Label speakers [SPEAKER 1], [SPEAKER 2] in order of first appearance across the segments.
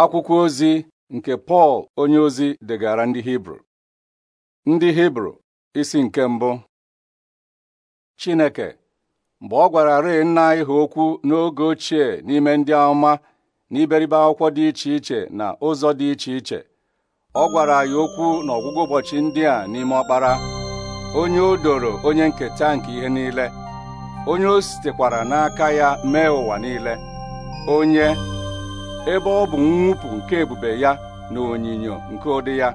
[SPEAKER 1] akwụkwọ ozi nke Pọl onye ozi degara ndị Hibru ndị Hibru isi nke mbụ Chineke mgbe ọ gwara rịị nna anyị ha okwu n'oge ochie n'ime ndị amụma na iberibe akwụkwọ dị iche iche na ụzọ dị iche iche ọ gwara anyị okwu n'ọgwụgwọ ụbọchị ndị a n'ime ọkpara onye o doro onye nketa nke ihe niile onye o sitekwara n'aka ya mee ụwa niile onye ebe ọ bụ mwụpụ nke ebube ya na onyinyo nke ụdị ya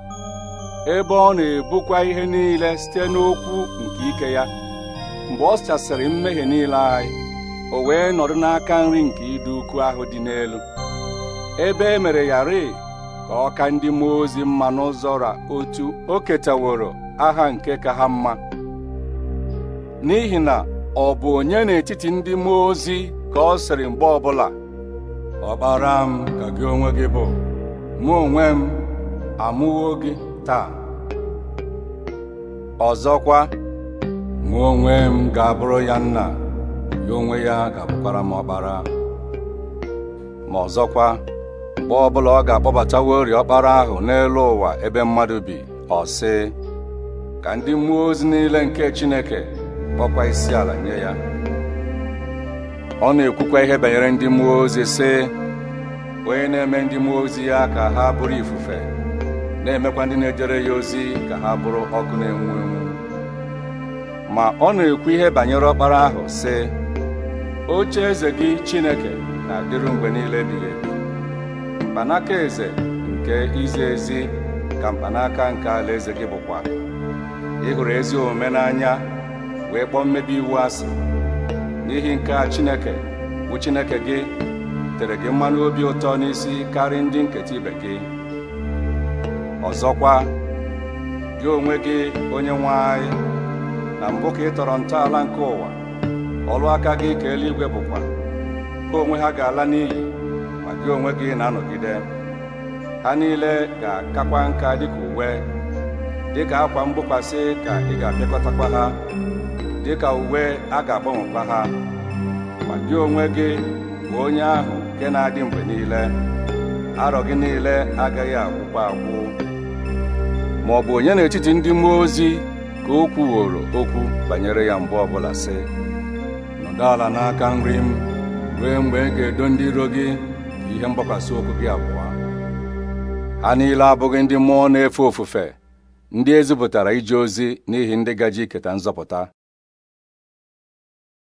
[SPEAKER 1] ebe ọ na-ebukwa ihe niile site n'okwu nke ike ya mgbe ọ sachasịrị mmehie niile anyị o wee nọdụ n'aka nri nke ịdị ukwu ahụ dị n'elu ebe e mere ya rịị ka ọ ka ndị mmụọ ozi mma n'ụzọ ra otu o ketaworo aha nke ka ha mma n'ihi na ọ bụ onye n'etiti ndị mmụọ ozi ka ọ sịrị mgbe ọbụla Ọbara m ka gị onwe gị bụ mụ onwe m amụwo gị taa ọzọkwa mụ onwe m ga-abụrụ ya nna ya onwe ya ga-abụkwara m ọkpara ma ọzọkwa mgbe ọbụla ọ ga-akpọbatawori ọkpara ahụ n'elu ụwa ebe mmadụ bi ọ sị ka ndị mmụọ ozi niile nke Chineke kpọkwa isi ala nye ya ọ na-ekwukwa ihe banyere ndị mmụọ ozi sị onye na-eme ndị mmụọ ozi ya ka ha bụrụ ifufe na-emekwa ndị na-ejere ya ozi ka ha bụrụ ọkụ na-enwu enwu ma ọ na-ekwu ihe banyere ọkpara ahụ sị oche eze gị Chineke na-adịru mgbe niile ebighị ebi mkpanaka eze nke izi ezi ka mkpanaka nke alaeze gị bụkwa ị hụrụ ezi omume n'anya wee kpọọ mmebi iwu asị n'ihi nke a chineke bụ chineke gị tere gị mmanụ obi ụtọ n'isi karị ndị nketa ibe gị ọzọkwa gị onwe gị onye nwe anyị na mbụ ka ị tọrọ ntọala nke ụwa ọlụ aka gị ka eluigwe bụkwa Ka onwe ha ga-ala n'ili, ma gị onwe gị na-anọgide ha niile ga-akakwa nka dịka uwe dịka akwa mgbokwasị ka ị ga-apịakọtakwa ha dịka uwe a ga-agbanwekwa ha ma gị onwe gị bụ onye ahụ nke na-adị mgbe niile arọ gị niile agaghị agwụkwa agwụ ma ọ bụ onye n'etiti ndị mmụọ ozi ka o kwuworo okwu banyere ya mgbe ọbụla sị nọdụ ala n'aka nri m ruo mgbe ị ga-edo ndị iro gị ihe mgbakwasị okwu gị abụọ ha niile abụghị ndị mmụọ na-efe ofufe ndị ezipụtara ije ozi n'ihi ndị gaji iketa nzọpụta